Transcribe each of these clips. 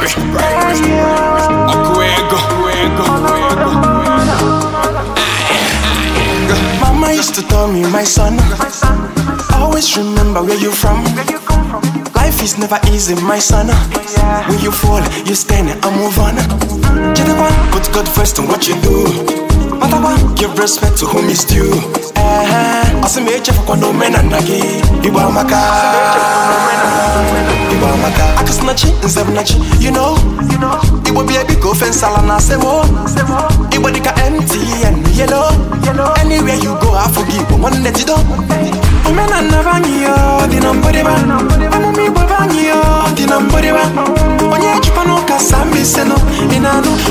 Okwego, Okwego, Mama used to tell me, my son, always remember where you from. Life is never easy, my son. When you fall, you stand and move on. Gentlemen put God first in what you do. Matawa, give respect to whom is due. Eh, asimeche kwa no mena nagi. Iwa maka. Iwa maka. like it's snatching in seven You know, you know, it would be a big offense. I'll say more. It would be empty and yellow. you go, I forgive. one let you oh, I'm a me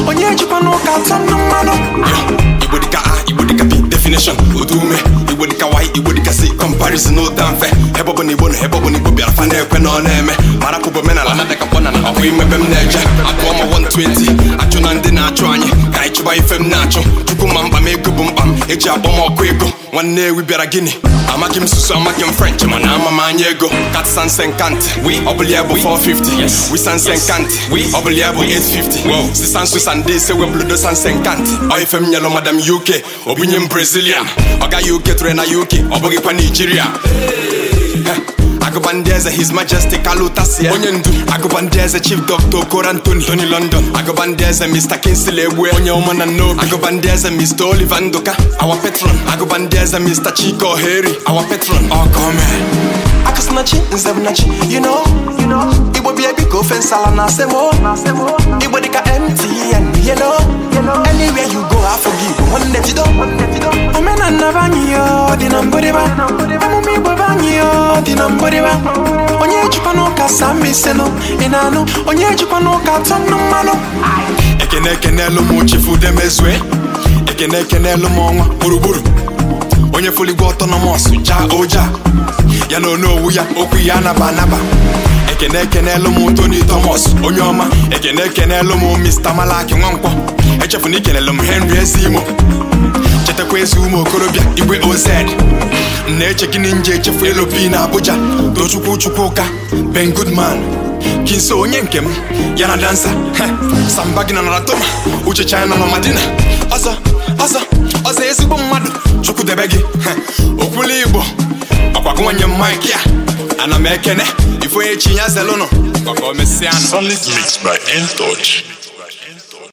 Onye Japanoka, Sammy parisi n'ụta mfe ebe ọbụla igbo na ebe na igbo bịara fa na-ekwe na ọ na-eme mara pụbụ omenala na ka mkpọna na ọkụ imebe m na-eje akụọ ma 120 achụ na ndị na-achụ anyị ka anyị chụba ife m na-achụ chukwu ma mkpa m ego bụ mkpa eji akpọm ọkụ ego nwanne ewi bịara gịnị amaghị m susu amaghị m french mana ama m anya ego katsanse nkantị ọbụla ya bụ 450 wisanse nkantị ọbụla ya bụ 850 sisansu sande ise webụludo sanse nkantị oife m nyelụ madam uk obunye m brazilian ọ gaghị uk tụrụ na uk ọ bụghịkwa naijiria Agụbandeze His Majestic Alutasia onye ndu Agụbandeze Chief Doctor Okoro Tony London Agụbandeze Mr. Kingsley Egwe onye ọma na nnobi Agụbandeze Mr. Oliver Nduka our patron Agụbandeze Mr. Chike Oheri our patron ọkome oh, akasinachi nzebnachi you know Igbo bịa ebi ka ofe nsala na asemo Igbo dịka MTN yelo anywhere you go I afọ gị Igbo nwanne jido omenala anyị ọ dị na mbụdịba ụka dị na mgbịrịgba onye ejikwa ụka sama iselu ị na-anụ onye ejikwa ụka atọ nnụ mmanụ ekene ekenelu m chifudemezue ekene ekenelu m ọnwa gburugburu onye foligwe ọtọnọmọs Ja oja ya na owu ya okwu ya anaba anaba ekene na m Tony Thomas onye ọma ekene ekenelu m Malaki Nwankwọ echefuna ikenelu m Henry Ezimo chetakwa ezi ụmụ okorobịa igwe oz na-eche gịnị nje echefu elu bi na Abuja tochukwu chukwuka Ben Goodman kinso onye nke m ya na dansa samba gị na nara toma uche china na madina ọsọ ọsọ ọsọ ezigbo mmadụ chukwu debe gị okwuli igbo ọkwagụnwanye mike a ana m ekene ifonye chi ya zelụnụ